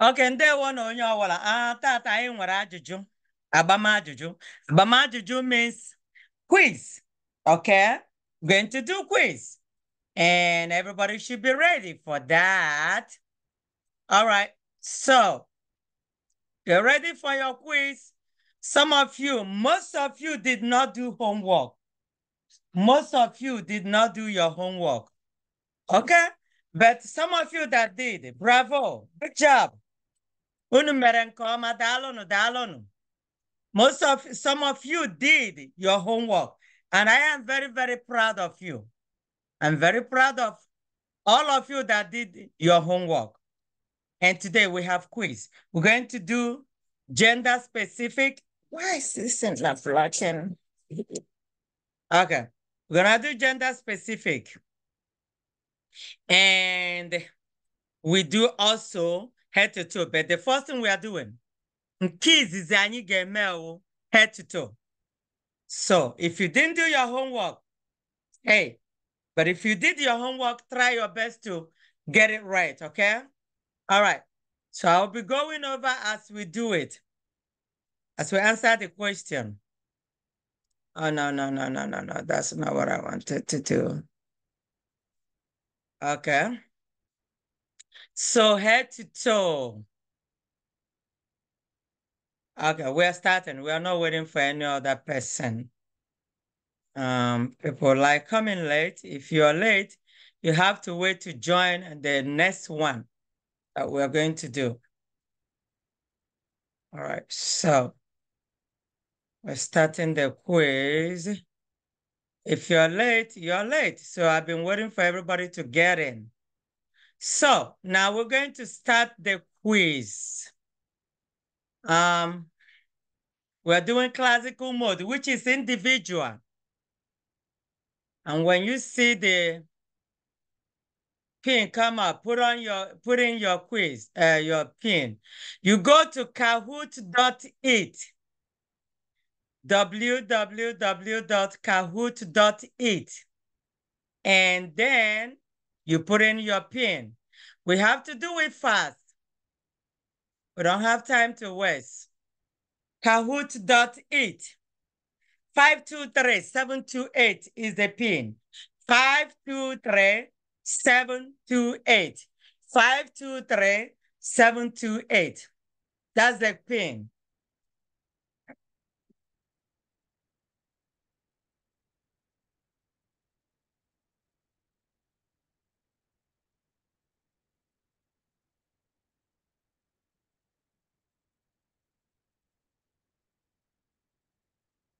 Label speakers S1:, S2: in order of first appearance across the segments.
S1: Okay, oke ndewo na onye ọwara a ah, tata anyị abama juju, abama juju means quiz okay going to do quiz and everybody should be ready for that all right so you're ready for your quiz some of you most of you did not do homework most of you did not do your homework okay but some of you that did bravo good job Unu mere nke dalonu Most of, some of you did your homework, and I am very, very proud of you. I'm very proud of all of you that did your homework. And today we have quiz. We're going to do gender specific. Why is this not flashing? Okay, we're gonna do gender specific. And we do also head to toe. But the first thing we are doing, kids is any gemel head to toe. So if you didn't do your homework, hey, but if you did your homework, try your best to get it right, okay? All right. So I'll be going over as we do it, as we answer the question. Oh, no, no, no, no, no, no. That's not what I wanted to do. Okay. So head to toe. Okay, we're starting. We are not waiting for any other person. Um, people like coming late. If you are late, you have to wait to join the next one that we're going to do. All right, so we're starting the quiz. If you're late, you're late. So I've been waiting for everybody to get in. So now we're going to start the quiz. Um, we're doing classical mode, which is individual. And when you see the pin come up, put on your put in your quiz, uh, your pin. You go to kahoot.it. www.kahoot.it. And then you put in your pin. We have to do it fast. We don't have time to waste. Kahoot.it. 523-728 is the pin. 523-728. 523-728. That's the pin.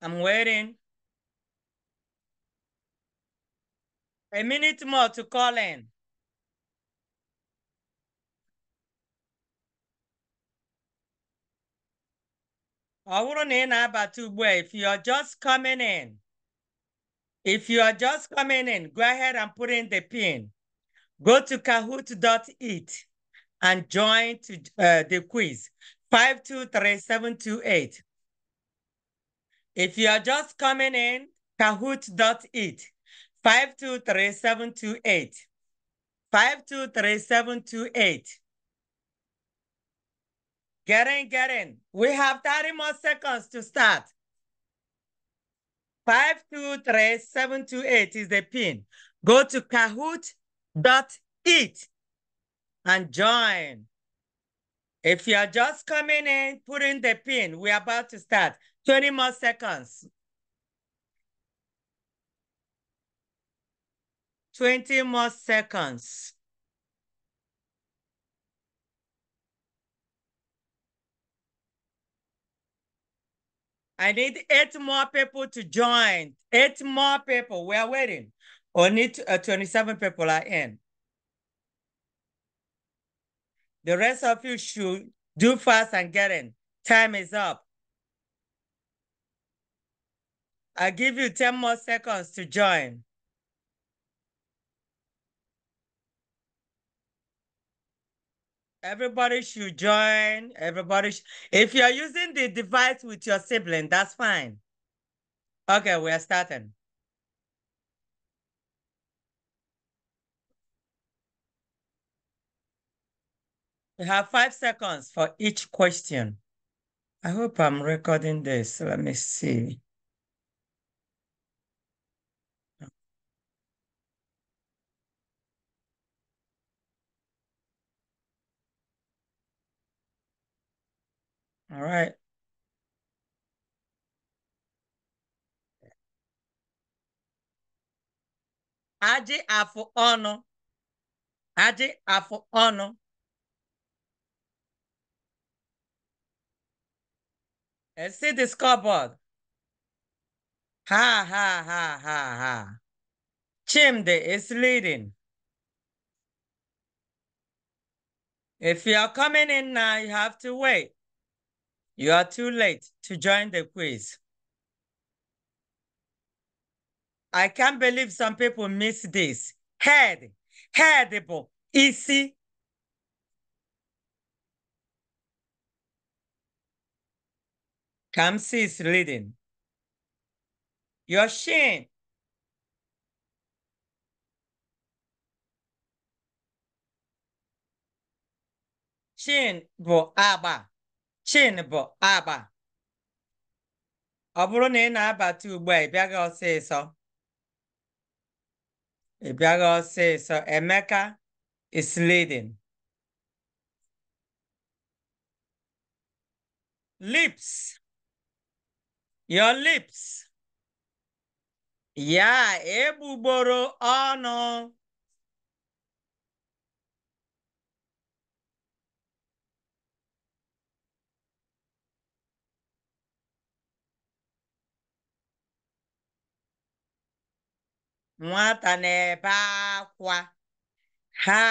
S1: I'm waiting. A minute more to call in. I wouldn't ị na-abata ugbu if you are just coming in if you are just coming in go ahead and put in the pin go to kahoot.it and join to, uh, the quiz 523728 if you are just coming in, kahoot.it, 523728. 523728. Get in, get in. We have 30 more seconds to start. Five two three seven two eight is the pin. Go to kahoot.it and join. If you are just coming in, put in the pin. We're about to start. 20 more seconds. 20 more seconds. I need eight more people to join. Eight more people. We are waiting. Only uh, 27 people are in. The rest of you should do fast and get in. Time is up. i give you 10 more seconds to join. Everybody should join. Everybody, if you're using the device with your sibling, that's fine. Okay, we are starting. We have five seconds for each question. I hope I'm recording this. Let me see. All right. Adị afụ ọnụ. Adị afụ ọnụ. see the scoreboard. Ha ha ha ha ha. Chimde is leading. If you are coming in now, you have to wait. You are too late to join the quiz. I can't believe some people miss this. Head, headable, easy. Kamsi is leading. Your shin. Shin bo aba. Chin bụ agba. Ọ bụrụ na ị na-abata ugbu a, ị bịaghị ọsịsọ. Ị bịaghị ọsịsọ. Emeka is Lips. Your lips. Ya egbugboro ọnụ. nwata na-ebe akwa ha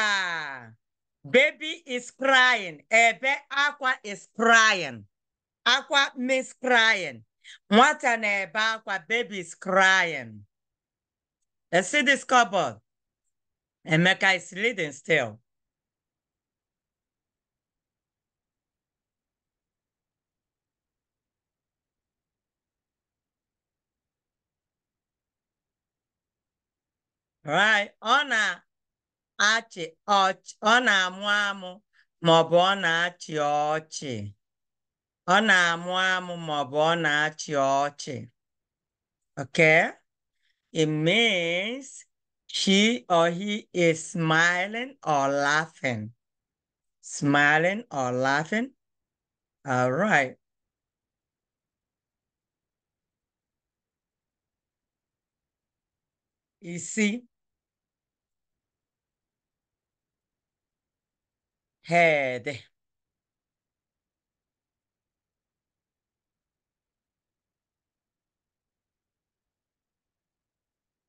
S1: baby is crying ebe akwa is crying akwa miss crying nwata na-ebe akwa baby is crying see this cupboard Emeka is leading still Right. Ọ na-achị ọchị, ọ na-amụ amụ ma ọ bụ ọ na-achị ọchị. Ọ na-amụ amụ ma ọ bụ ọ na-achị ọchị. Okay? It means she or he is smiling or laughing. Smiling or laughing. All right. Isi هاده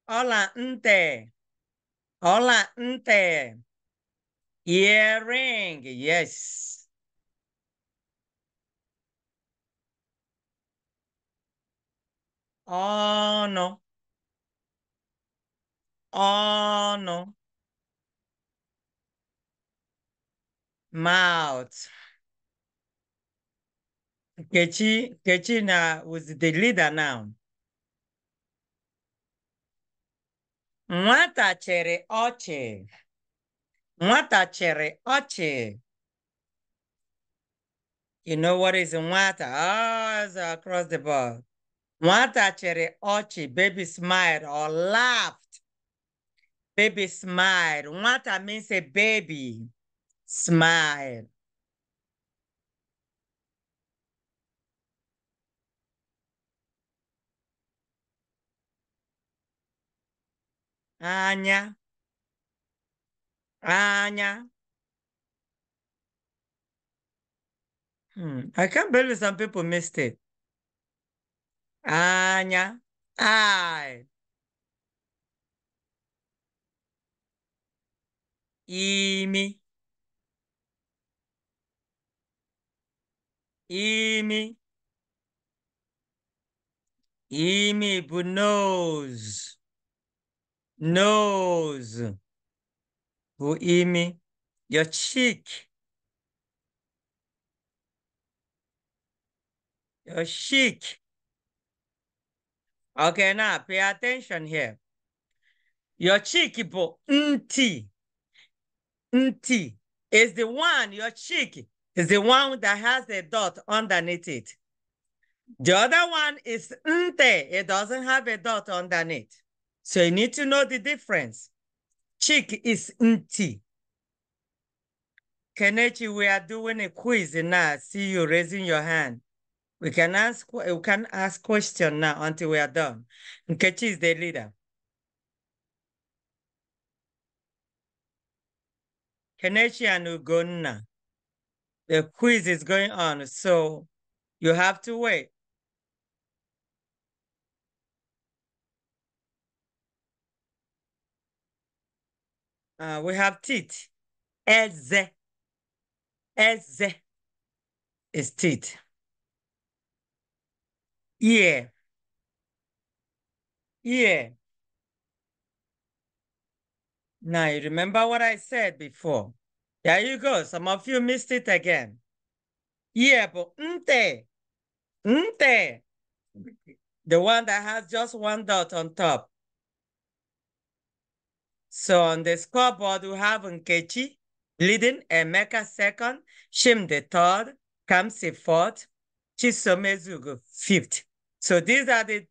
S1: Hola, ante. Hola, ante. Earring, yes. Oh, no. Oh, no. mouth. Kechi, Kechi na, was the leader now. Nwata chere ochie Nwata chere ochie You know what is nwata? Oh, it's across the board. Nwata chere ochie Baby smiled or laughed. Baby smiled. Nwata means a baby. Smile. Anya. Anya. Hmm. I can't believe some people missed it. Anya. I. Imi. Emi. Emi, but nose. Nose. Bu imi. Your cheek. Your cheek. Okay, now pay attention here. Your cheek, but nti. Nti is the one, your cheek is the one that has a dot underneath it. The other one is nte. It doesn't have a dot underneath. So you need to know the difference. Chick is nti. Kenichi, we are doing a quiz now. see you raising your hand. We can ask we can ask question now until we are done. Nkechi is the leader. Kenichi and Ugonna the quiz is going on, so you have to wait. Uh, we have teeth. Ez. Ez is teeth. Yeah. Yeah. Now you remember what I said before. There you go. Some of you missed it again. Yeah, but Nte, Nte, the one that has just one dot on top. So on the scoreboard, we have Nkechi leading Emeka second, Shim the third, Kamsi fourth, Chisomezugu fifth. So these are the,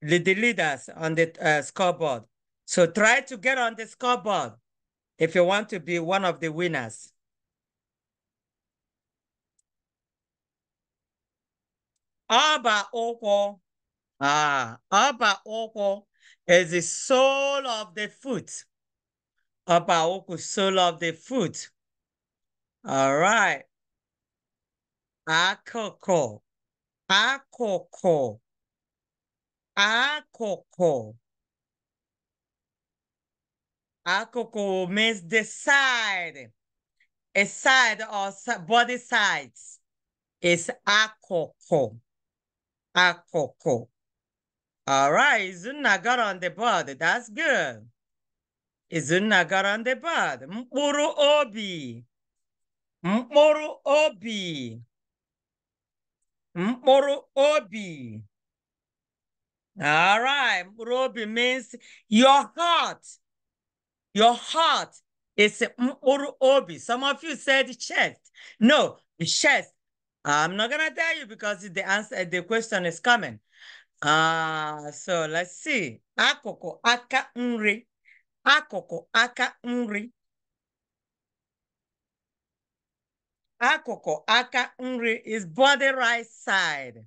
S1: the leaders on the uh, scoreboard. So try to get on the scoreboard if you want to be one of the winners, Abba Oko, ah, Abba Oko is the soul of the foot. Abba Oko, soul of the foot. All right. Akoko, Akoko, Akoko. Ako means the side. A side or body sides is akoko. Akoko. All right, Izuna got on the body. That's good. Izuna got on the body. Mkpuru obi. Mkpuru obi. Mkpuru obi. All right, mkpuru obi means your heart. Your heart is obi. Some of you said chest. No, chest. I'm not gonna tell you because the answer, the question is coming. Ah, uh, so let's see. Akoko aka nri. Akoko aka nri. Akoko aka nri is body right side.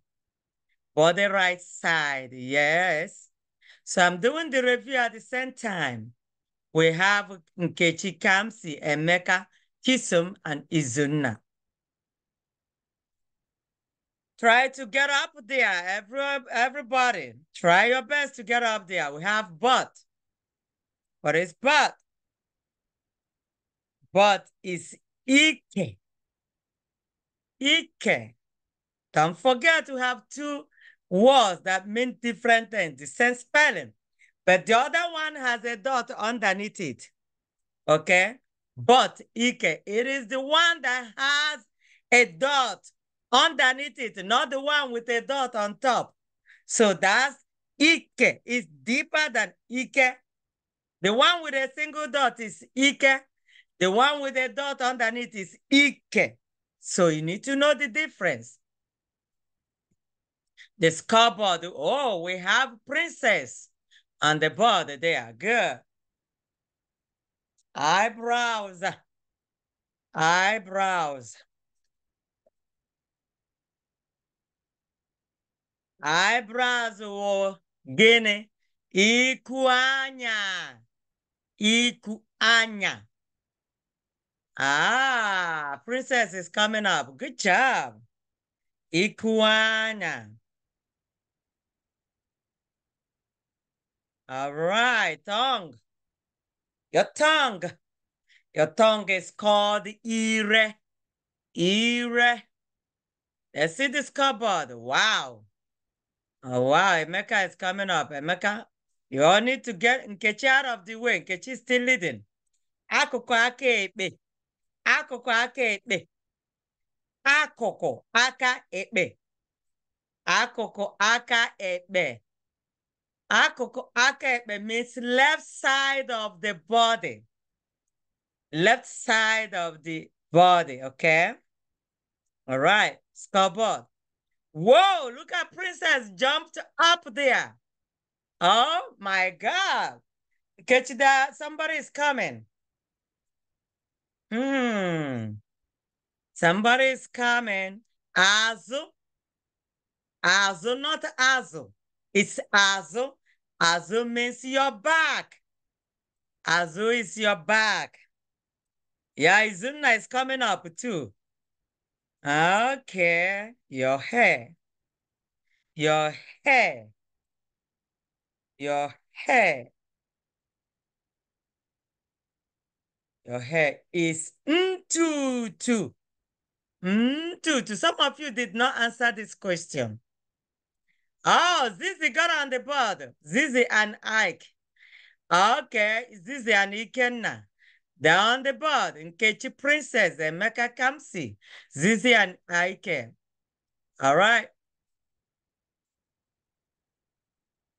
S1: Body right side, yes. So I'm doing the review at the same time we have Nkechi Kamsi, Emeka, Kisum, and Izuna. Try to get up there, every, everybody. Try your best to get up there. We have but. What is but? But is Ike. Ike. Don't forget to have two words that mean different things, the same spelling. But the other one has a dot underneath it. Okay? But Ike, it is the one that has a dot underneath it, not the one with a dot on top. So that's Ike. It's deeper than Ike. The one with a single dot is Ike. The one with a dot underneath is Ike. So you need to know the difference. The scoreboard. Oh, we have princess. On the body, they are good. Eyebrows. Eyebrows. Eyebrows were gịnị? Iku anya. Ah, princess is coming up. Good job. Iku All right, tongue. Your tongue. Your tongue is called ire. Ire. Let's see this cupboard. Wow. Oh, wow. Emeka is coming up. Emeka, you all need to get Nkechi out of the way. Nkechi is still leading. Akuku aka ekpe. Akuku aka ekpe. Akuku aka ekpe. Akụkụ aka ekpe. Akụkụ means left side of the body. Left side of the body, okay? All right, scoreboard. Whoa, look at Princess jumped up there. Oh my God. Catch that. Somebody is coming. Hmm. Somebody is coming. Azu. Azu, not Azu. It's Azu. Azu means your back. Azu is your back. Yeah, Izuna is coming up too. Okay, your hair. Your hair. Your hair. Your hair is mtutu. Mtutu. Some of you did not answer this question. Oh, Zizi got on the board. Zizi and Ike. Okay, Zizi and Ikenna. They're on the board. in Ketchy Princess, Emeka Kamsi, Zizi and Ike. All right.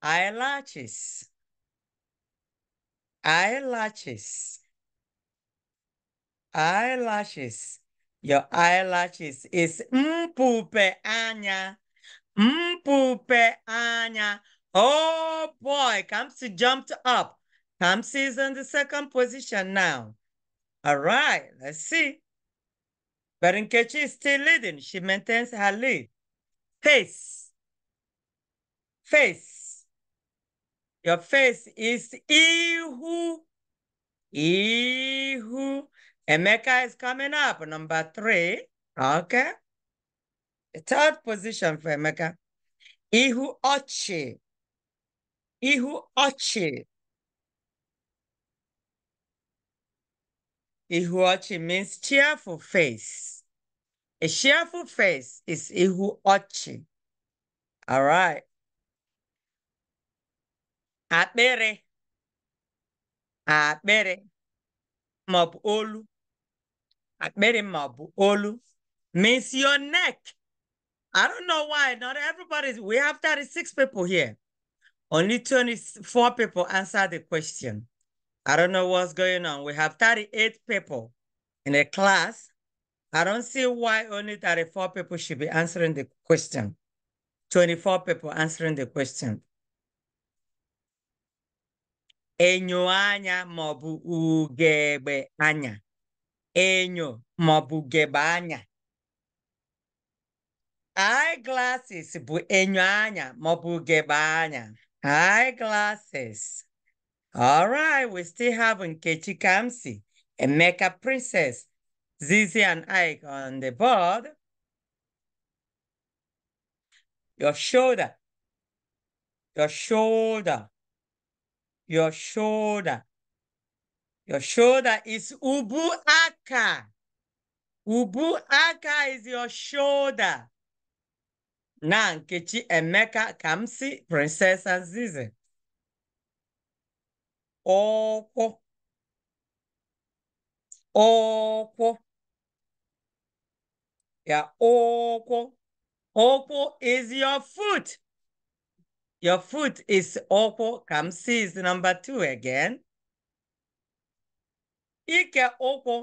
S1: Eyelashes. Eyelashes. Eyelashes. Your eyelashes is mpupe anya. Mpupe anya. Oh boy, Kamsi jumped up. Kamsi is in the second position now. All right, let's see. But is still leading. She maintains her lead. Face. Face. Your face is Ihu. Ihu. Emeka is coming up, number three. Okay third position for Emeka, Ihu Ochi. Ihu Ochi. Ihu Ochi means cheerful face. A cheerful face is Ihu Ochi. All right. Akpere. Akpere. Mabu olu. Akpere mabu olu means your neck. I don't know why. Not everybody's. We have 36 people here. Only 24 people answered the question. I don't know what's going on. We have 38 people in a class. I don't see why only 34 people should be answering the question. 24 people answering the question. Enyo anya maọbụ ugegbe anya. Enyo maọbụ ugegbe anya eyeglasses bụ enyo anya maọbụ ugegbe anya eyeglasses alright we still have Nkechi Kamsi Emeka Princess Zizi and Ike on the board your shoulder your shoulder your shoulder your shoulder is ubu aka ubu aka is your shoulder na Nkechi Emeka ka m si Princess Azizi ụkwụ ụkwụ ya ụkwụ ụkwụ is your foot your foot is ụkwụ ka m si is number two again ike ụkwụ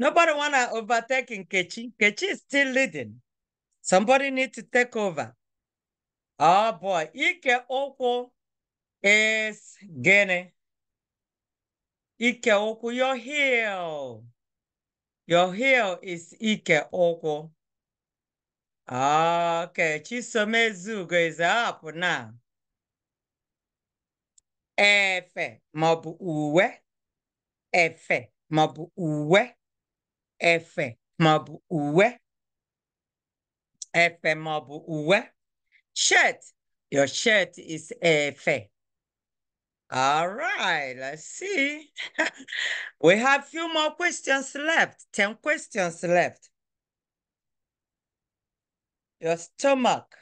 S1: nobody wanna overtake Nkechi Nkechi is still leading Somebody need to take over. Oh boy, ike ụkwụ is gịnị? Ike ụkwụ, your heel. Your heel is ike ụkwụ. Okay, Chisomezugo is up now. Efe maọbụ uwe. Efe maọbụ uwe. Efe maọbụ uwe. efe maọbụ uwe shirt your shirt is F. all right let's see we have few more questions left 10 questions left your stomach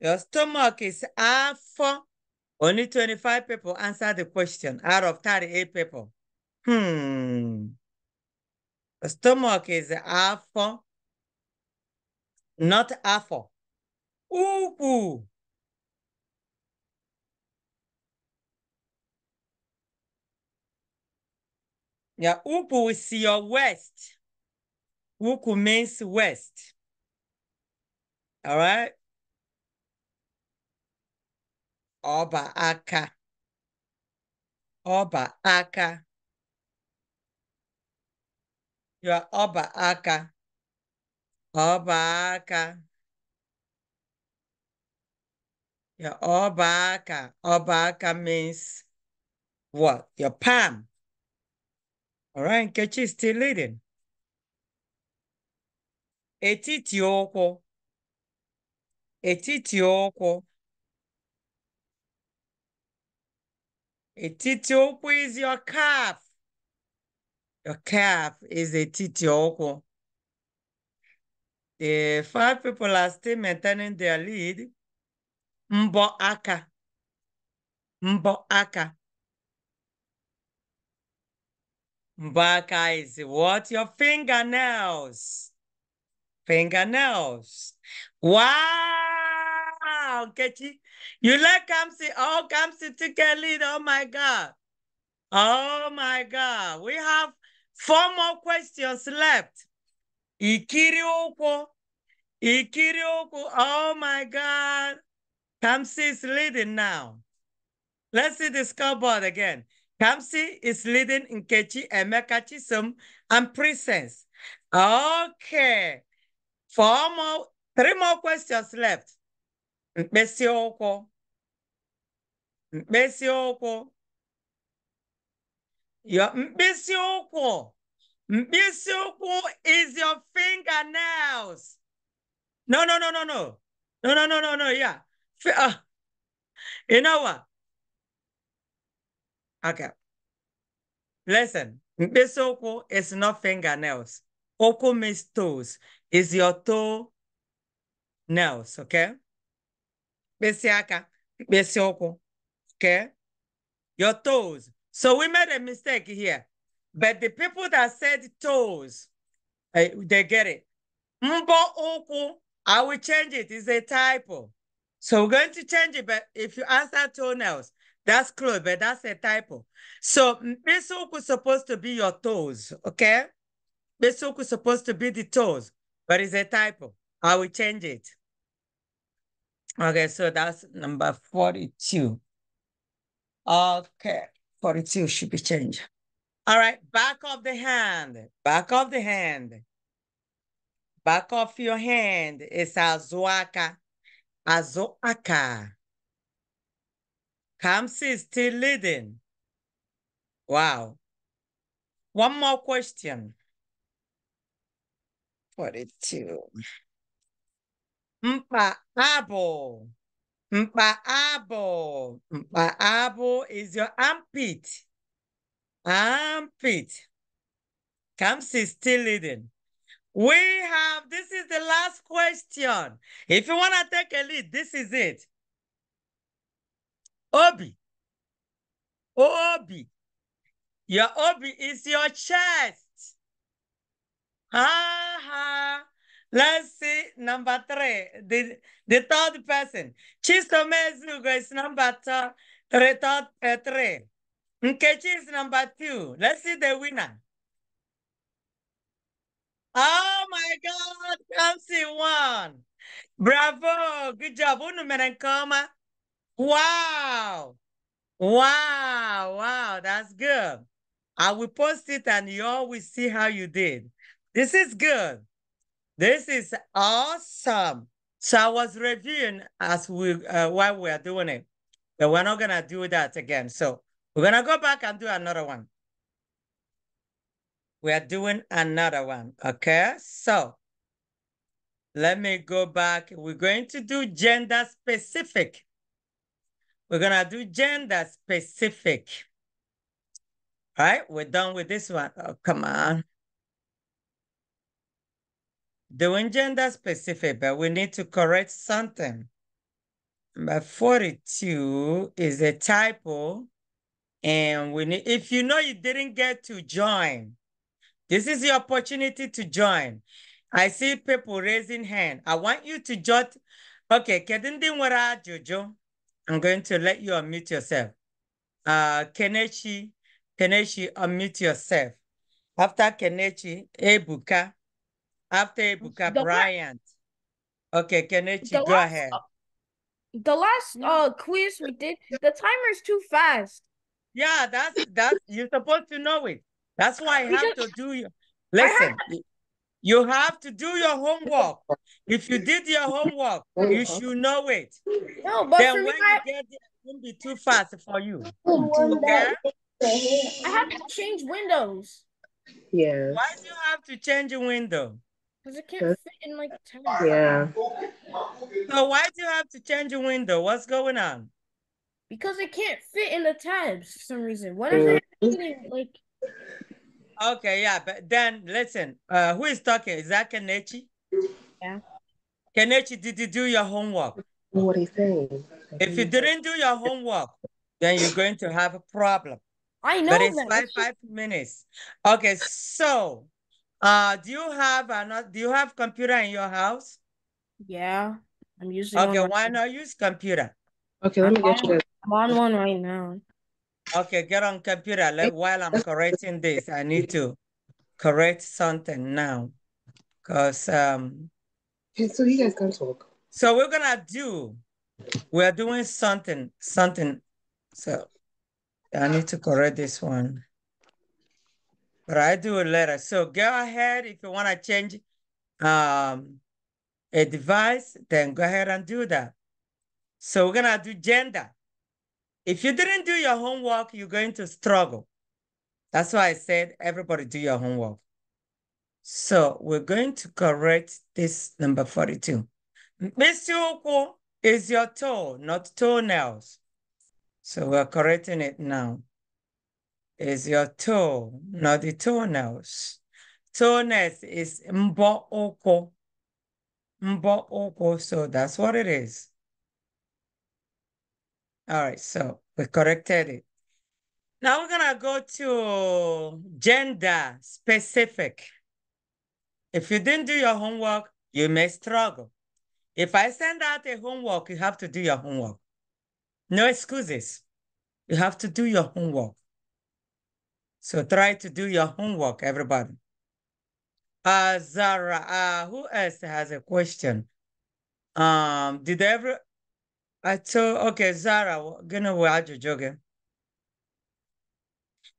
S1: your stomach is F. only 25 people answer the question out of 38 people hmm The stomach is afọ not afọ ukwu ya ukwu is your west. ukwu means west. All right. ọba aka. ọba aka. You are aka. ọba your ọba aka means what your palm all Nkechi is still leading etiti ụkwụ etiti ụkwụ etiti ụkwụ is your calf your calf is etiti ụkwụ Uh, five people are still maintaining their lead. Mboaka. Mboaka. Mboaka is what? Your fingernails. Fingernails. Wow, Kechi. You like Kamsi? Oh, Kamsi took a lead. Oh, my God. Oh, my God. We have four more questions left. Ikiriokwo. Ikiriokwo. Oh my God. Kamsi is leading now. Let's see the scoreboard again. Kamsi is leading Kechi, Emeka Chisum and Presence. Okay. Four more, three more questions left. Mesioko. Mesioko. yeah, okwo. Misuku is your fingernails. No, no, no, no, no. No, no, no, no, no. Yeah. Uh, you know what? Okay. Listen, Misuku is not fingernails. Oku means toes. Is your toe nails, okay? Besiaka, Besioku, okay? Your toes. So we made a mistake here. But the people that said toes, uh, they get it. Mbo uku, I will change it. It's a typo. So we're going to change it. But if you answer toenails, that's close, but that's a typo. So besoku is supposed to be your toes, okay? Besoku is supposed to be the toes, but it's a typo. I will change it. Okay, so that's number 42. Okay, 42 should be changed. All right, back of the hand, back of the hand. Back of your hand is azuaka, azuaka. Kamsi is still leading. Wow. One more question. 42. Mpa abo. Mpa abo. Mpa abo is your armpit. Pete. Kamsi is still leading. We have, this is the last question. If you want to take a lead, this is it. Obi. Obi. Your obi is your chest. Ha ha. Let's see number three, the, the third person. Mezugo is number three. three, third, uh, three. Nkechi is number two. Let's see the winner. Oh my God, Kamsi won. Bravo. Good job. Unumerenkoma. Wow. Wow. Wow. That's good. I will post it and you all will see how you did. This is good. This is awesome. So I was reviewing as we uh, while we are doing it, but we're not gonna do that again. So we're going to go back and do another one. We are doing another one, okay? So let me go back. We're going to do gender specific. We're going to do gender specific. All right, we're done with this one. Oh, come on. Doing gender specific, but we need to correct something. Number 42 is a typo. And we need, if you know you didn't get to join, this is the opportunity to join. I see people raising hand. I want you to jot. Okay, Kedindinwara Jojo, I'm going to let you unmute yourself. Uh, Kenechi, Kenechi, unmute yourself. After Kenechi, Ebuka. After Ebuka, the Bryant. okay, Kenechi, go last, ahead. Uh, the last uh quiz we did, the timer's too fast. Yeah, that's that's you're supposed to know it. That's why I have to do your listen. You have to do your homework. If you did your homework, you mm-hmm. should know it. No, but then when you get there, it won't be too fast for you. Okay? I have to change windows. Yeah. Why do you have to change a window? Because it can't fit in like a. Yeah. So why do you have to change a window? What's going on? because it can't fit in the tabs for some reason. What is uh, it like? Okay, yeah, but then listen, uh, who is talking? Is that Kenichi? Yeah. Kenichi, did you do your homework? What are you saying? If you didn't do your homework, then you're going to have a problem. I know. But it's that. five five minutes. Okay, so uh, do you have another? Do you have computer in your house? Yeah, I'm using. Okay, why not use computer?
S2: Okay, let me get you.
S1: I'm on one right now. Okay, get on computer. Like while I'm correcting this, I need to correct something now. Because um so you guys can talk. So we're gonna do we're doing something, something. So I need to correct this one. But I do a letter. So go ahead if you want to change um a device, then go ahead and do that. So we're gonna do gender. If you didn't do your homework, you're going to struggle. That's why I said everybody do your homework. So we're going to correct this number 42. Mr. is your toe, not toenails. So we're correcting it now. Is your toe, not the toenails. Toenails is mbo oko. Mbo oko, so that's what it is. All right, so we corrected it. Now we're gonna go to gender specific. If you didn't do your homework, you may struggle. If I send out a homework, you have to do your homework. No excuses. You have to do your homework. So try to do your homework, everybody. Uh, Zara, uh, who else has a question? Um, did every I told, okay, Zara, gonna you Jogan.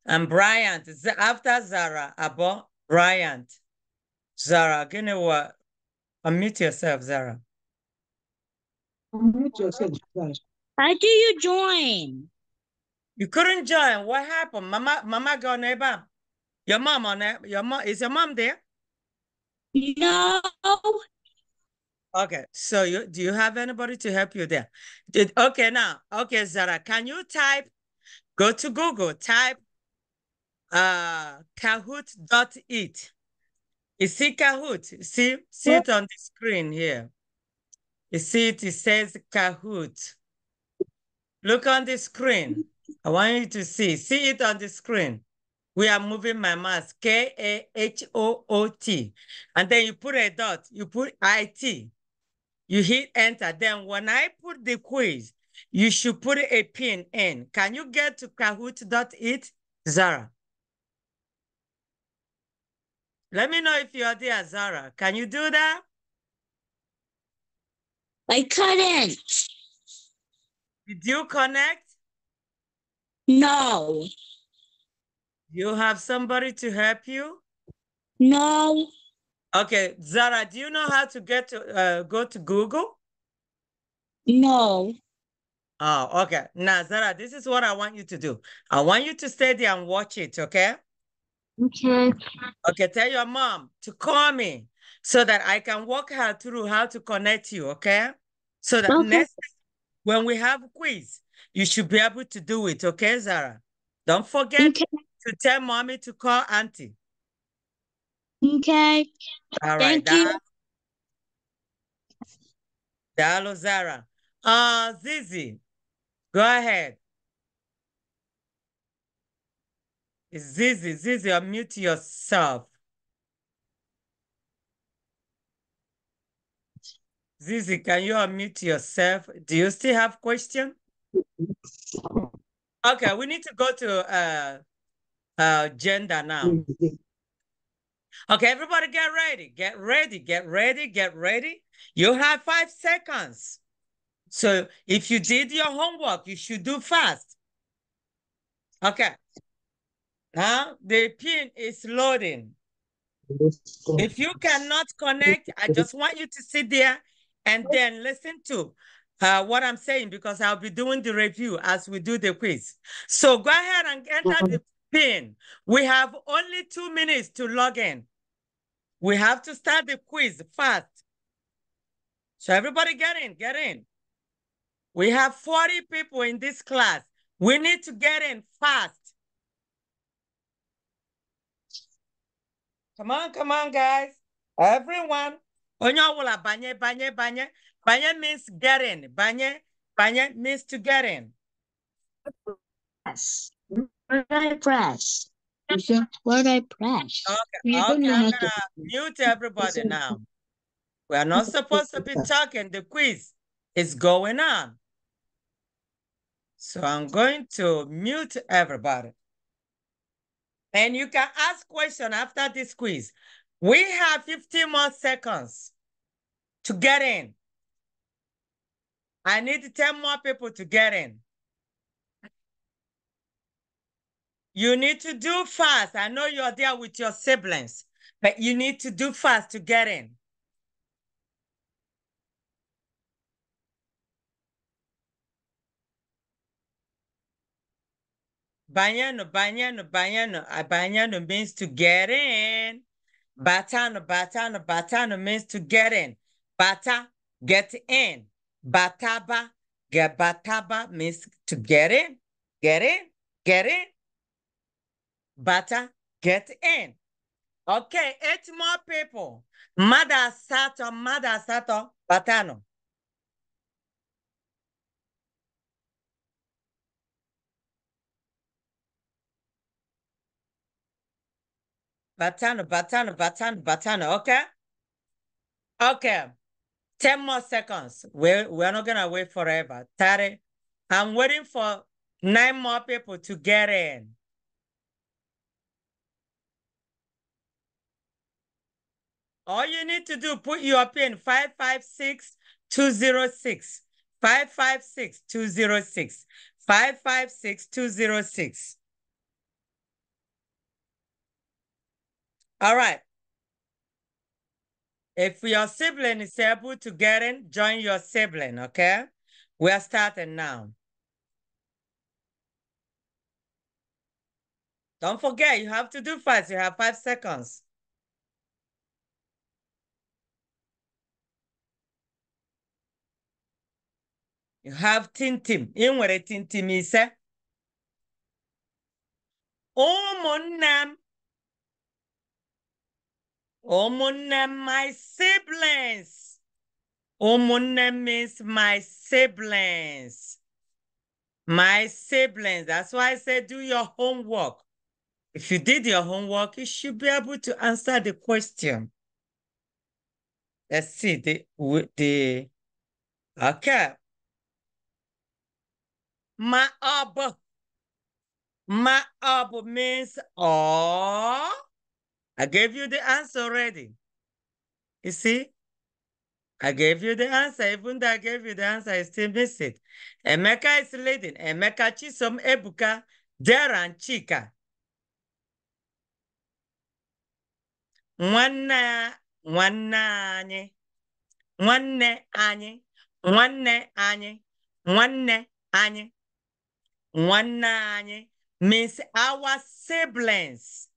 S1: And Bryant, after Zara, about Bryant. Zara, gonna what? Unmute yourself, Zara. Unmute yourself, Zara. How do you join? You couldn't join. What happened? Mama, Mama go neighbor. Your mom on it. Your mom is your mom there? No. Okay, so you do you have anybody to help you there? Did, okay, now, okay, Zara, can you type, go to Google, type uh, Kahoot. it. You see Kahoot, see, see it on the screen here. You see it, it says Kahoot. Look on the screen. I want you to see, see it on the screen. We are moving my mouse, K-A-H-O-O-T. And then you put a dot, you put I-T. You hit enter. Then when I put the quiz, you should put a pin in. Can you get to kahoot.it, Zara? Let me know if you're there, Zara. Can you do that? I couldn't. Did you connect? No. You have somebody to help you? No. Okay, Zara, do you know how to get to uh, go to Google? No. Oh, okay. Now, Zara, this is what I want you to do. I want you to stay there and watch it, okay? Okay. Okay, tell your mom to call me so that I can walk her through how to connect you, okay? So that okay. next when we have quiz, you should be able to do it, okay, Zara? Don't forget okay. to tell mommy to call auntie. Okay. All right. Thank you. Dalo Zara. Uh, Zizi, go ahead. Zizi, Zizi, unmute yourself. Zizi, can you unmute yourself? Do you still have question? Okay, we need to go to uh, uh, gender now. Okay, everybody get ready. Get ready. Get ready. Get ready. You have five seconds. So if you did your homework, you should do fast. Okay. Now the pin is loading. If you cannot connect, I just want you to sit there and then listen to uh, what I'm saying because I'll be doing the review as we do the quiz. So go ahead and enter the pin. We have only two minutes to log in. We have to start the quiz fast. So everybody get in, get in. We have 40 people in this class. We need to get in fast. Come on, come on, guys. Everyone. Onyawola banye, banye, banye. Banye means get in. Banye, banye means to get in. Press. press what I press. Okay, okay I'm gonna to... mute everybody now. We are not supposed to be talking. The quiz is going on. So I'm going to mute everybody. And you can ask question after this quiz. We have 15 more seconds to get in. I need 10 more people to get in. You need to do fast. I know you're there with your siblings, but you need to do fast to get in. Banyano, banyano, banyano. Banyano means to get in. Batano, batano, batano means to get in. Bata, get in. Bataba, get bataba means to get in, get in, get in, better get in. Okay, eight more people. Mother Sato, Mother Sato, Batano. Batano, Batano, Batano, Batano. Okay. Okay. 10 more seconds. We're, we're not going to wait forever. 30. I'm waiting for nine more people to get in. All you need to do, put your pin 556-206. 556-206. 556-206. All right. If your sibling is able to get in, join your sibling, okay? We're starting now. Don't forget, you have to do fast. You have five seconds. You have tintim. team nwere tintim ise. Eh? Ụmụnne m. Ụmụnne m, my siblings. my name means my siblings. My siblings. That's why I said do your homework. If you did your homework, you should be able to answer the question. Let's see the the okay. ma ọ bụ ma ọ bụ means ọ. I gave you the answer already. You see? I gave you the answer. Even though I gave you the answer, I still miss it. Emeka is leading. Emeka Chisom Ebuka Deran Chika. Nwanne nwanne anyị. Nwanne anyị. Nwanne anyị. Nwanne anyị. nwanne means our siblings.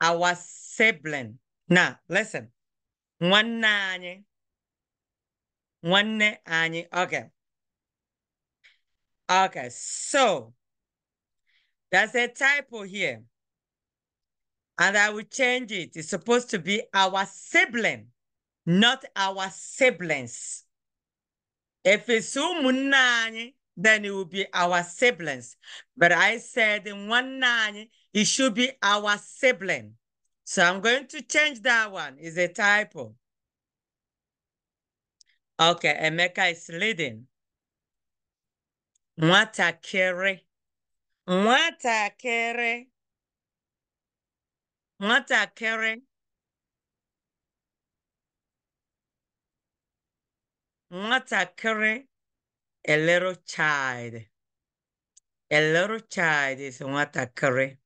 S1: Our sibling. Now, listen. one anyị. Nwanne Okay. Okay, so there's a typo here. And I will change it. It's supposed to be our sibling, not our siblings. If it's then it will be our siblings. But I said in one nine, it should be our sibling. So I'm going to change that one. It's a typo. Okay, Emeka is leading. Nwatakịrị. Nwatakịrị. Nwatakịrị. Nwatakịrị a little child. A little child is what correct.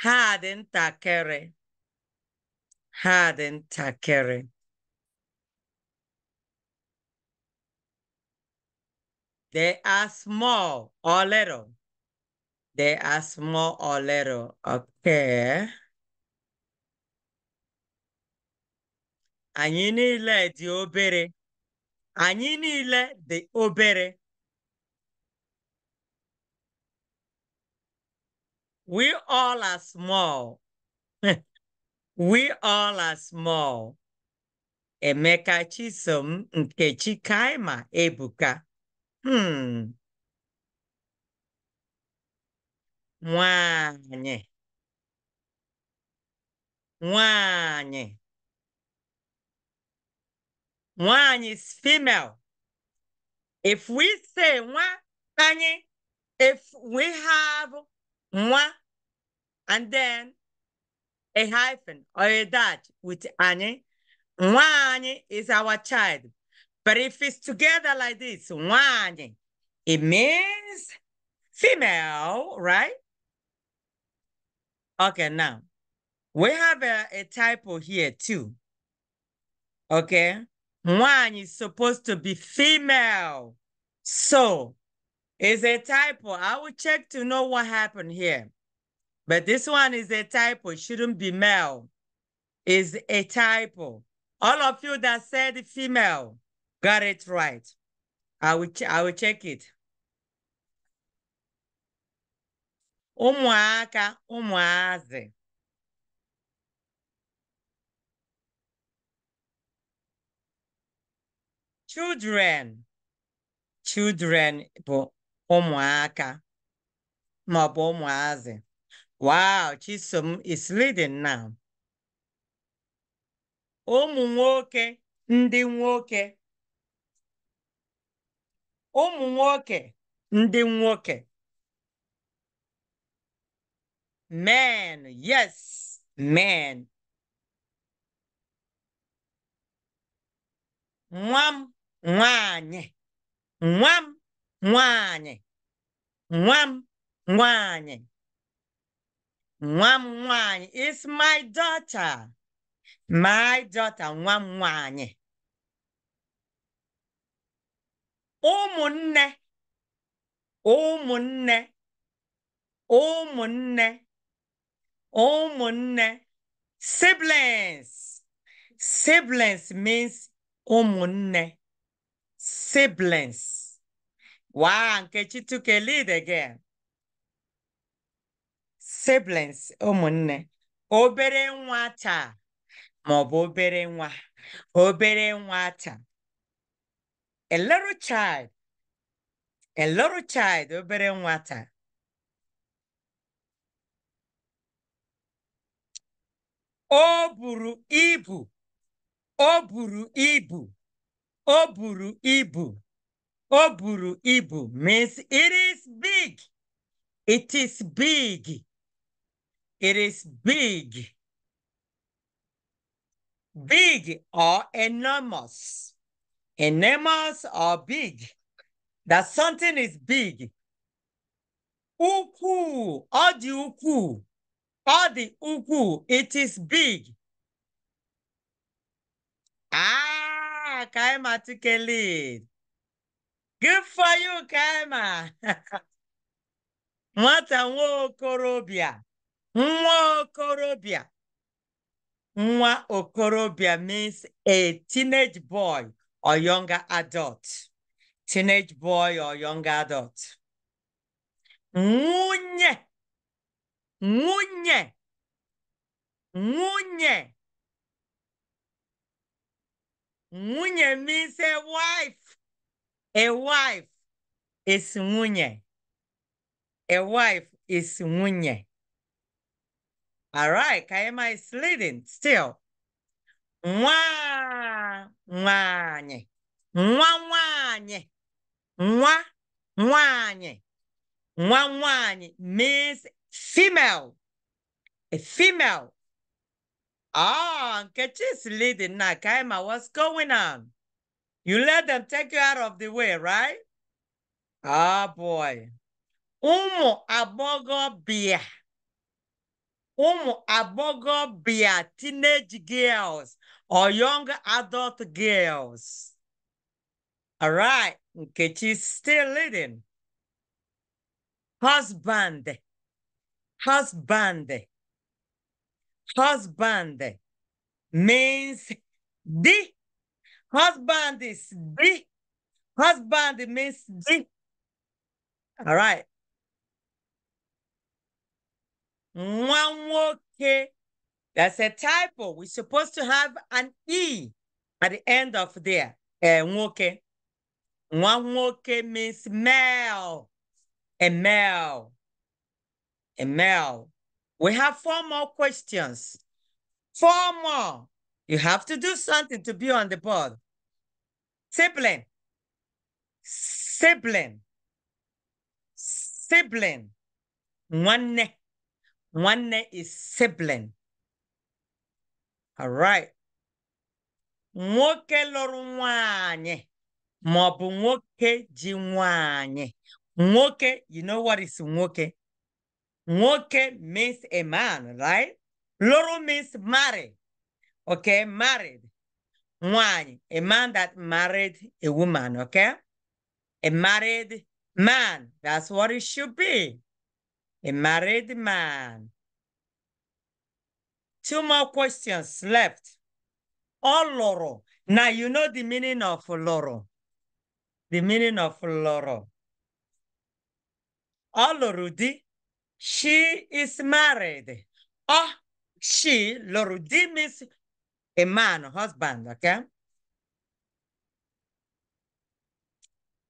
S1: Harden, not takere. Harden, takere. They are small or little. They are small or little. Okay. anyị niile dị obere anyị niile dị obere we all are small we all are small Emeka Chisom nke Kaima Ebuka hmm nwanyị nwanyị one is female. If we say one, if we have one and then a hyphen or a dash with any, one is our child. But if it's together like this, one, it means female, right? Okay, now we have a, a typo here too. Okay. One is supposed to be female. So it's a typo. I will check to know what happened here. But this one is a typo. It shouldn't be male. Is a typo. All of you that said female got it right. I will, I will check it. Umuaka, umuaze. children children bụ ụmụaka bụ ụmụazị wow chisom is leading now ụmụ nwoke ndị nwoke ụmụ nwoke ndị nwoke men yes men nwa m nwaanyị nwa m nwaanyị nwa m nwaanyị nwa m nwaanyị is my daughter my daughter nwa m nwanyị ụmụnne ụmụnne ụmụnne ụmụnne siblings siblings means ụmụnne siblings. Wow, Nkechi took a lead again. Siblings, ụmụnne, oh, obere nwa taa maọbụ obere nwa, obere nwa taa. A little child, a little child, obere taa. O buru ibu, o buru ibu. O buru ibu. O buru ibu means it is big. It is big. It is big. Big or enormous. Enormous or big. That something is big. Uku, all the uku, all the uku, it is big. Ah, Ah, Kaima took a lead. Good for you, Kaima. Nwata nwa okorobịa. Nwa okorobịa. Nwa means a teenage boy or younger adult. Teenage boy or younger adult. Nwunye. Nwunye. Nwunye. Nwunye means a wife. A wife is nwunye. A wife is nwunye. All right, Kayama is leading still. Nwa nwanye. Nwa nwanye. Nwa nwanye. Nwa nwanye means female. A female Ah, oh, Nkechi's leading now. Kaima, what's going on? You let them take you out of the way, right? Ah, oh, boy. Umu abogo bia. Umu abogo bia. Teenage girls or young adult girls. All right. Nkechi's still leading. Husband. Husband husband means the. Husband is the. Husband means the. All right. okay That's a typo. We're supposed to have an E at the end of there. Eh, nwoke. Nwanwoke means male. A male. A male. We have four more questions. Four more. You have to do something to be on the board. Sibling. Sibling. Sibling. One. One is sibling. All right. Nwoke lụrụ nwanyị ma bụ ji you know what is nwoke? Moke means a man, right? Loro means married. Okay, married. One, a man that married a woman, okay? A married man. That's what it should be. A married man. Two more questions left. All oh, loro. Now you know the meaning of loro. The meaning of loro. All oh, loro she is married. Oh, she, lo redeem is a man, husband, okay?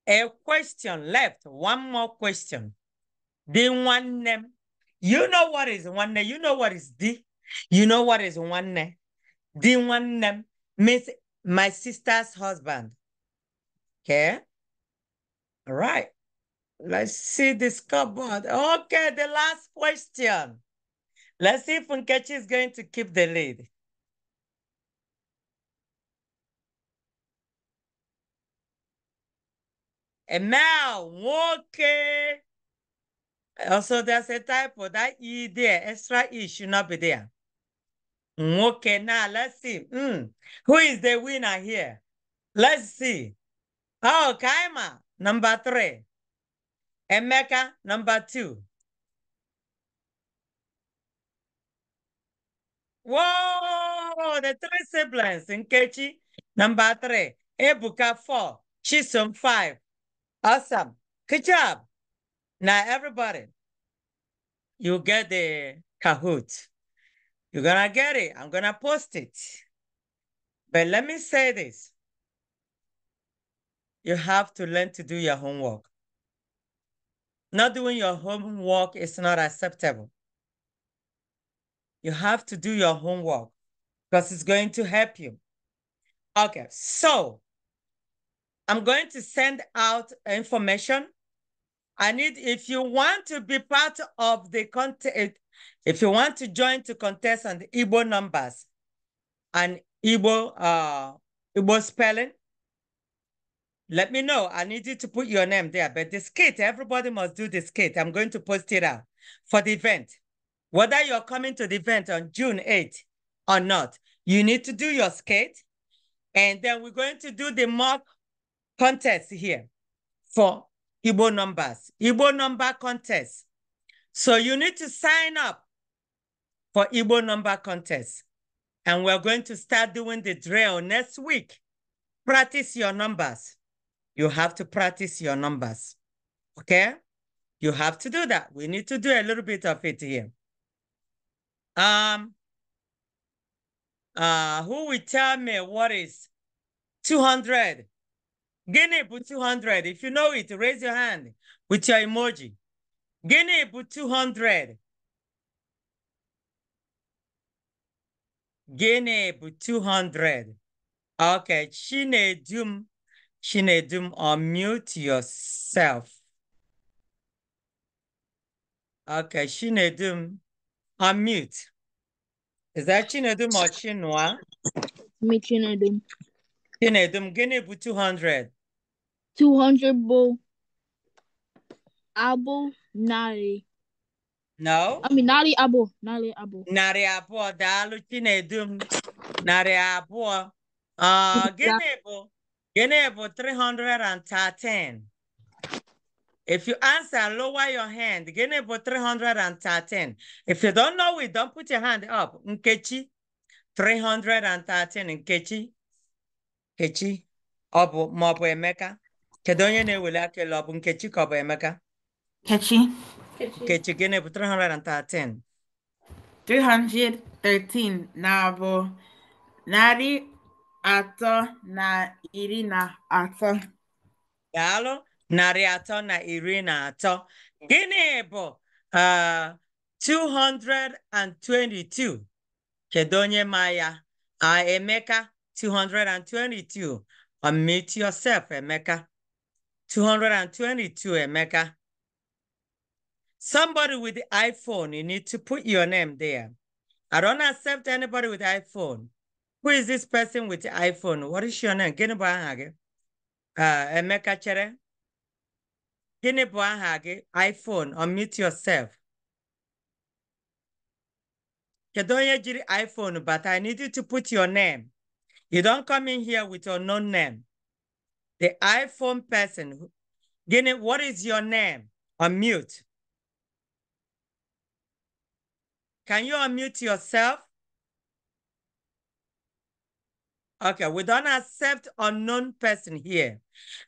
S1: A question left, one more question. The one name. You know what is one name. You know what is the. You know what is one name. The one name means my sister's husband. Okay? All right. Let's see this cupboard. Okay, the last question. Let's see if Nkechi is going to keep the lead. And now, okay. Also, there's a typo. That E there, extra E should not be there. Okay, now let's see. Mm. Who is the winner here? Let's see. Oh, Kaima, number three. Emeka, number two. Whoa, the three siblings. Nkechi, number three. Ebuka, four. Chisum, five. Awesome. Good job. Now, everybody, you get the Kahoot. You're going to get it. I'm going to post it. But let me say this. You have to learn to do your homework. Not doing your homework is not acceptable. You have to do your homework because it's going to help you. Okay, so I'm going to send out information. I need, if you want to be part of the contest, if you want to join to contest on the Igbo numbers and Igbo, uh, Igbo spelling, let me know. I need you to put your name there. But this kit, everybody must do this kit. I'm going to post it out for the event. Whether you're coming to the event on June 8th or not, you need to do your skate. And then we're going to do the mock contest here for Igbo numbers, Igbo number contest. So you need to sign up for Igbo number contest. And we're going to start doing the drill next week. Practice your numbers you have to practice your numbers. Okay? You have to do that. We need to do a little bit of it here. Um, uh, who will tell me what is 200? Guinea put 200. If you know it, raise your hand with your emoji. Guinea put 200. Guinea put 200. Okay, dum. Chinedum, unmute yourself. Okay, Chinedum, unmute. Is that Chinedum or Chinua? Me Chinedum. Chinedum, gịnị bụ 200? 200 bụ Abo narị. No? I mean, narị abụ, narị abụ. Narị abụọ, daalụ Chinedum, narị Ah, Uh, gịnị bụ? Yenebo 313. If you answer, lower your hand. Yenebo 313. If you don't know it, don't put your hand up. Nkechi 313. Nkechi. Nkechi. Obu maọbụ Emeka. Kedonye ne na-eweli aka elu ọbụ Nkechi ka ọ bụ Emeka? Nkechi. Nkechi gịnị 313? 313 Nabo, narị atọ na iri na atọ. Daalụ narị atọ na iri na atọ. Gịnị bụ uh, 222? Kedu onye ma ya? Uh, Emeka 222. Unmute yourself, Emeka. 222, Emeka. Somebody with the iPhone, you need to put your name there. I don't accept anybody with iPhone who is this person with iPhone? What is your name? Gịnị bụ aha gị? Uh, Emeka chere. Gịnị bụ aha gị? iPhone, unmute yourself. Kedu onye jiri iPhone but I need you to put your name. You don't come in here with your known name. The iPhone person, Gịnị, what is your name? Unmute. Can you unmute yourself? Okay, we don't accept unknown person here.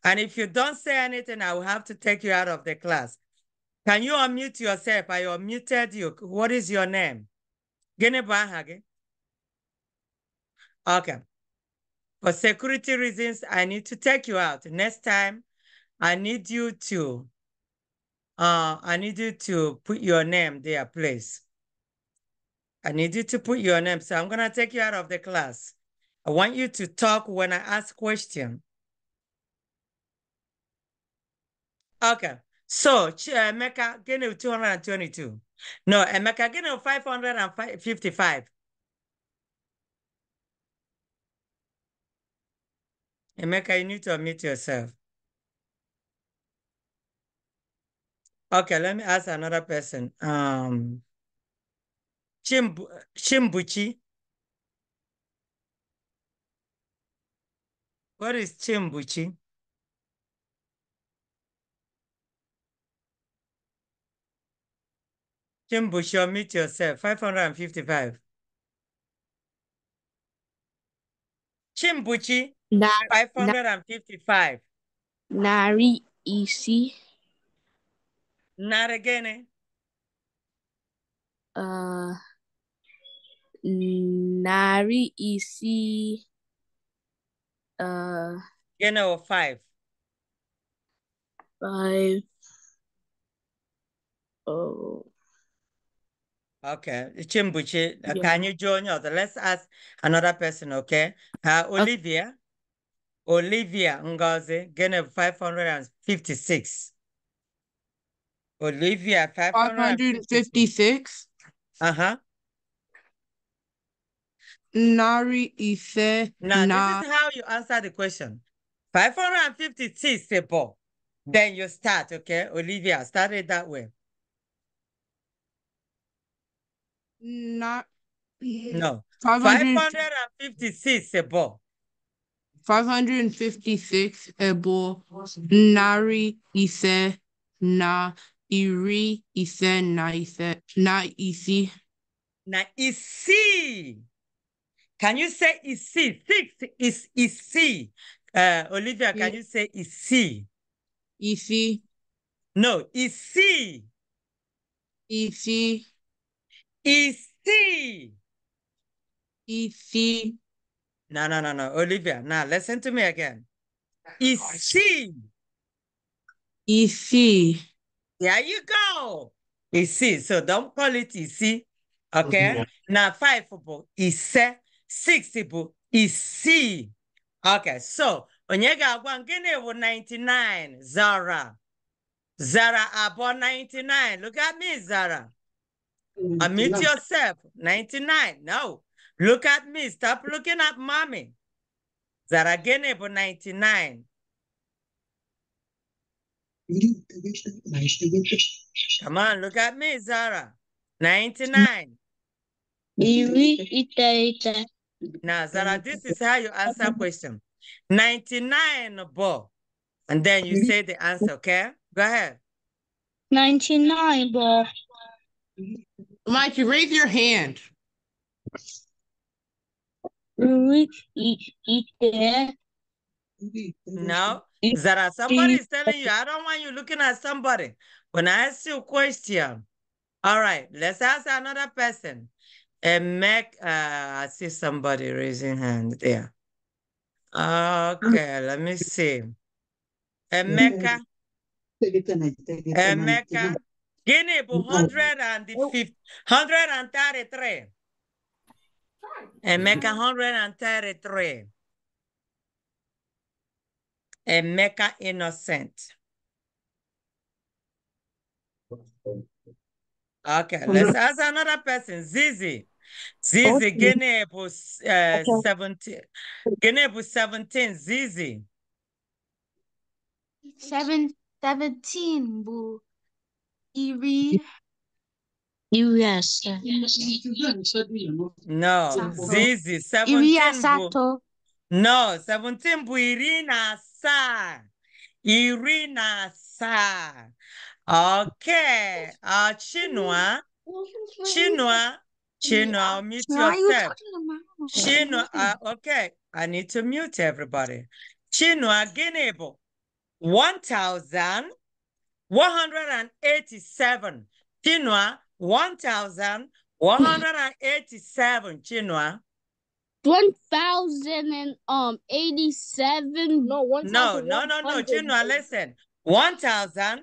S1: And if you don't say anything, I will have to take you out of the class. Can you unmute yourself? I unmuted you. What is your name? Gene Hague. Okay. For security reasons, I need to take you out. Next time, I need you to, uh, I need you to put your name there, please. I need you to put your name. So I'm going to take you out of the class. I want you to talk when I ask question. Okay. So, uh, Emeka, give me 222. No, Emeka, give me 555. Emeka, you need to unmute yourself. Okay, let me ask another person. Um, Chimbu Chimbuchi. What is Chimbuchi? Chimbuchi, meet yourself. 555. Chimbuchi, Na 555. Nari isi. Naragene. Eh? Uh, nari isi uh you know five five oh okay chimbuchi uh, yeah. can you join us let's ask another person okay uh olivia okay. olivia ngozi gene 556 olivia 556 uh-huh narị ise Now, na. this is how you answer the question. 556 people. Then you start, okay? Olivia, start it that way. Na no. 556 ebo. 556 ebo nari ise na iri ise na ise na isi. Na isi. Can you say EC? Six is EC. Uh, Olivia, can you say EC? EC. No, EC. EC. EC. EC. No, no, no, no. Olivia, now listen to me again. EC. EC. There you go. EC. So don't call it EC. Okay? Yeah. Now five football. EC. 6 bụ isii okay so onye ga-agwa gịnị bụ 99 zara zara abụọ 99 look at me zara I mm-hmm. meet yourself 99 no look at me stop looking at mommy zara gịnị bụ 99 Come on, look at me, Zara. 99. Now, Zara, this is how you answer question. 99 ball. And then you say the answer, okay? Go ahead. 99 ball. Mike, you raise your hand. No, Zara, somebody is telling you, I don't want you looking at somebody. When I ask you a question, all right, let's ask another person. And Mac, uh, I see somebody raising hand there. Okay, let me see. Emeka. Emeka. Guinea, 133. Emeka, 133. Emeka, innocent. Okay, let's ask another person. Zizi. Zizi, okay. Guinea uh, okay. 17. Guinea 17, Zizi. Seven, 17, Bu. Iri. Yes. No, Zizi, 17. Iri Sato. No, 17, Bu Irina Sa. Irina Sa. Okay. Uh, Chinua. Chinua. Chinua, I'll mute Chinua, yourself. Chinua, uh, okay. I need to mute everybody. Chinua Ginebo, 1,187. Chinua, 1,187. Chinua. 1,087. Um, no, 1, no, no, no, no, Chinua, listen. 1,000.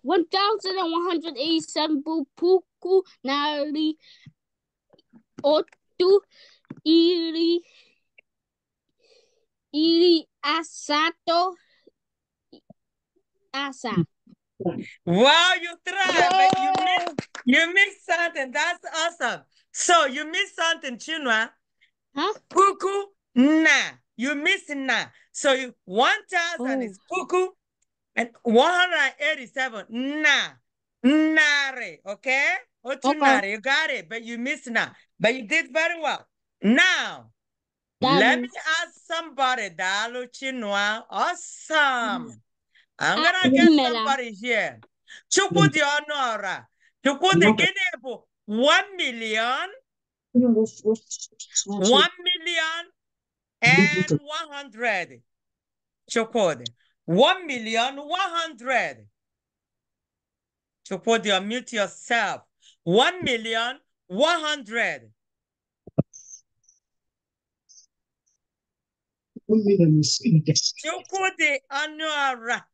S1: 1187 puku nari otu iri iri asato asa. Wow, you tried, but you missed, you missed something. That's awesome. So you missed something, Chinua. Huh? Puku na. You missed na. So you, 1,000 oh. is puku, and 187. Na. Nare. Okay? Otunare. You got it, but you missed na. But you did very well. Now, that let is... me ask somebody. Dalu Chinua. Awesome. Mm. I'm going to get somebody here. Mm. Chukudi Honora. Chukudi Ginebu. One million. Mm. One million and one hundred. Chukudi. One million, one hundred. To put your mute yourself. One million, one hundred. Chukwudi Anuara.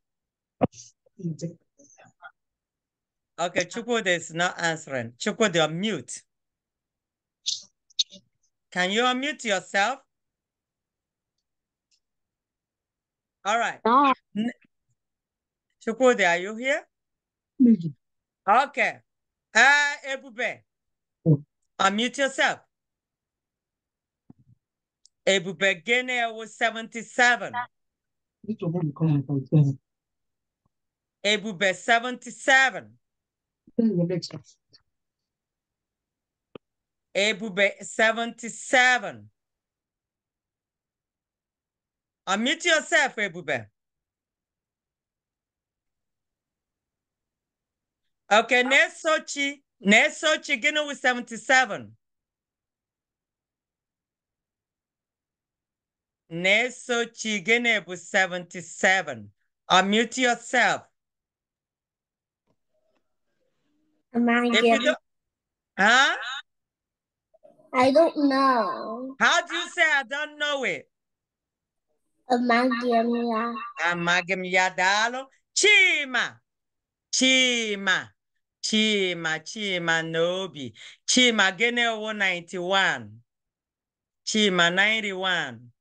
S1: Okay, Chukwudi is not answering. Chukwudi, you're mute. Can you unmute yourself? All right. No. Chukwudi, are you here? Okay. Uh, Ebube, unmute yourself. Ebube Guinea was 77. Ebube 77. Ebube 77. Unmute yourself, Ebube. Okay, uh, next Sochi. Next Sochi, Guinea with 77. Next Sochi, Guinea with 77. Unmute yourself. Am I if you don't, huh? I don't know. How do you say I don't know it? Amagamya. Amagamya dalo. Chima. Chima. Chima. Chima Nobi. Chima Gene 191. Chima 91.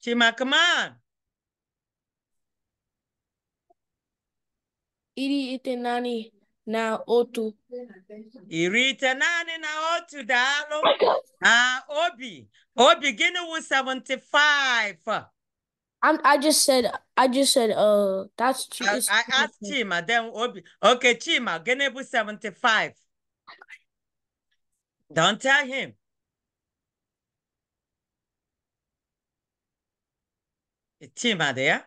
S1: Chima, come on. Iri itenani na otu iri ite naanị na otu daalụ na obi obi gịnị wụ 75 I'm, I just said, I just said, uh, that's true. I, I asked Chima, then Obi. Okay, Chima, gonna be 75. Don't tell him. Chima there?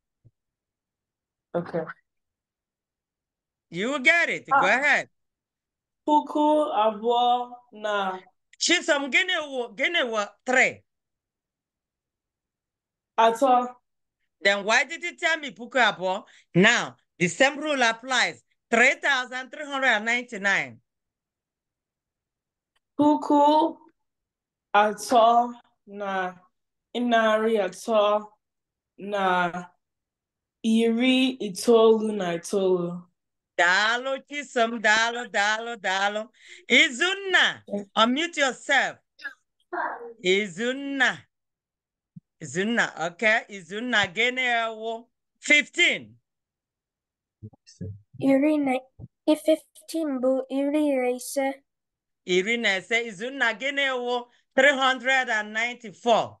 S1: Okay. You got it. Ah. Go ah. ahead. Puku abo na. Chisa mgene wo gene wa tre. Ato. Then why did you tell me puku abo? Now the same rule applies. Three thousand three hundred and ninety nine. Puku ato na inari ato na iri itoolu na itoolu daalụ chisom daalụ daalụ daalụ izunna unmute yourself izunna izunna ok izunna gịnị ewu 15 15 bụ iri na ise iri na ise izunna gịnị ewu 394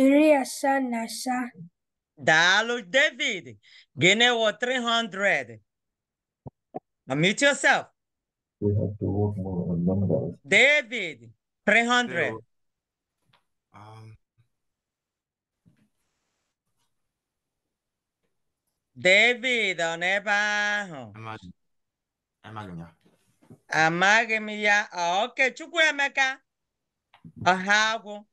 S1: iri asaa na asaa. David, gịnị wụ 300? Unmute yourself. We have to work more on numbers. David, 300. David, ọ nọ ebe ahụ? Amaghị m ya. Amaghị m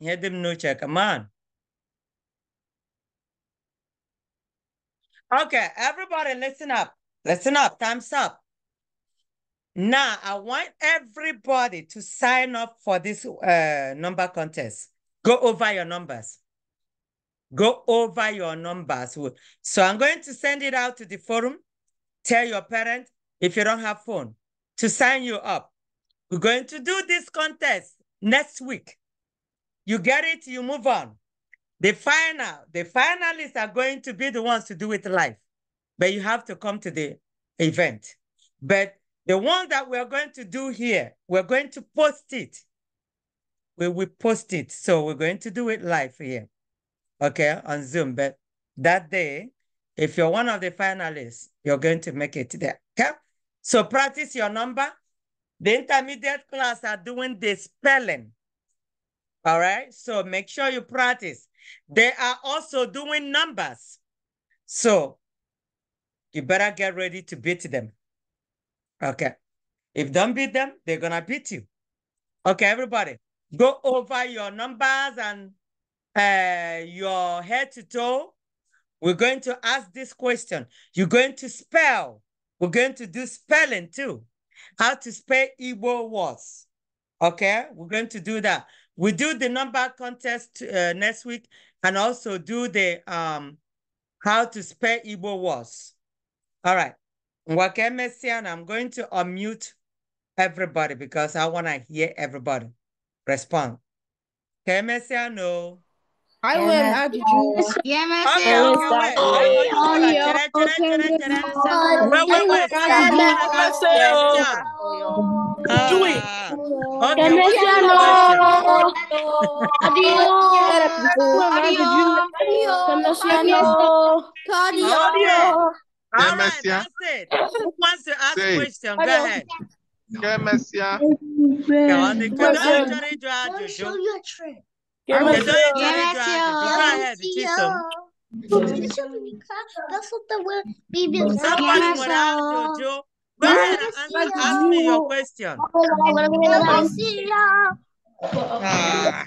S1: Head them no check. Come on. Okay, everybody listen up. Listen up. Time's up. Now, I want everybody to sign up for this uh, number contest. Go over your numbers. Go over your numbers. So I'm going to send it out to the forum. Tell your parent if you don't have phone to sign you up. We're going to do this contest next week. You get it, you move on. The final, the finalists are going to be the ones to do it live, but you have to come to the event. But the one that we're going to do here, we're going to post it. We will post it. So we're going to do it live here, okay, on Zoom. But that day, if you're one of the finalists, you're going to make it there, okay? So practice your number. The intermediate class are doing the spelling all right, so make sure you practice. They are also doing numbers. So you better get ready to beat them. Okay. If don't beat them, they're gonna beat you. Okay, everybody, go over your numbers and uh, your head to toe. We're going to ask this question. You're going to spell. We're going to do spelling too. How to spell Igbo words. Okay, we're going to do that. We do the number contest uh, next week and also do the um, how to spell Igbo words. All right. and I'm going to unmute everybody because I want to hear everybody respond. Kemesiano. I will add you. Wait, wait, wait. Do it. Okay. Demasiado.
S2: Adiós.
S1: Demasiado. Adiós. All right, that's it. Who wants to ask a question? Go ahead. Kemesia. Show your trick. Go ahead, Jojo. That's what the word Bibi Somebody without Jojo ask me your question. Oh, oh, oh, ah.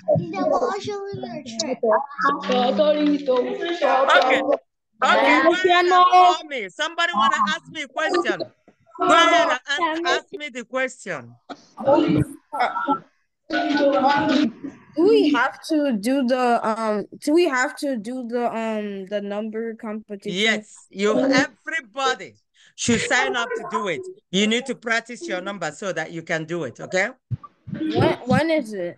S1: Okay. Okay, me. somebody want to ask me a question. ask me the question. Do we have to do the um? Do we have to do the um the number competition? Yes, you everybody should sign up to do it. You need to practice your number so that you can do it, okay? When? when is it?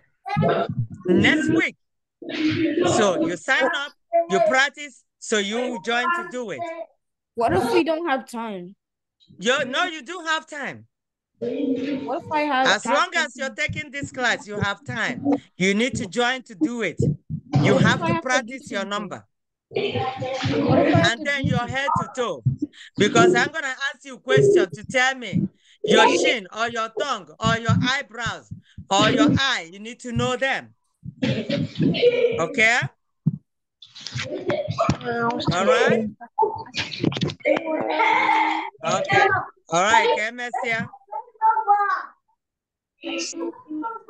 S1: Next week. So you sign up, you practice, so you join to do it. What if we don't have time? You no, you do have time. What if I have as long as you're taking this class, you have time. You need to join to do it. You have to practice your number and then your head to toe. Because I'm going to ask you a question to tell me your chin or your tongue or your eyebrows or your eye. You need to know them. Okay? All right. Okay. All right, okay,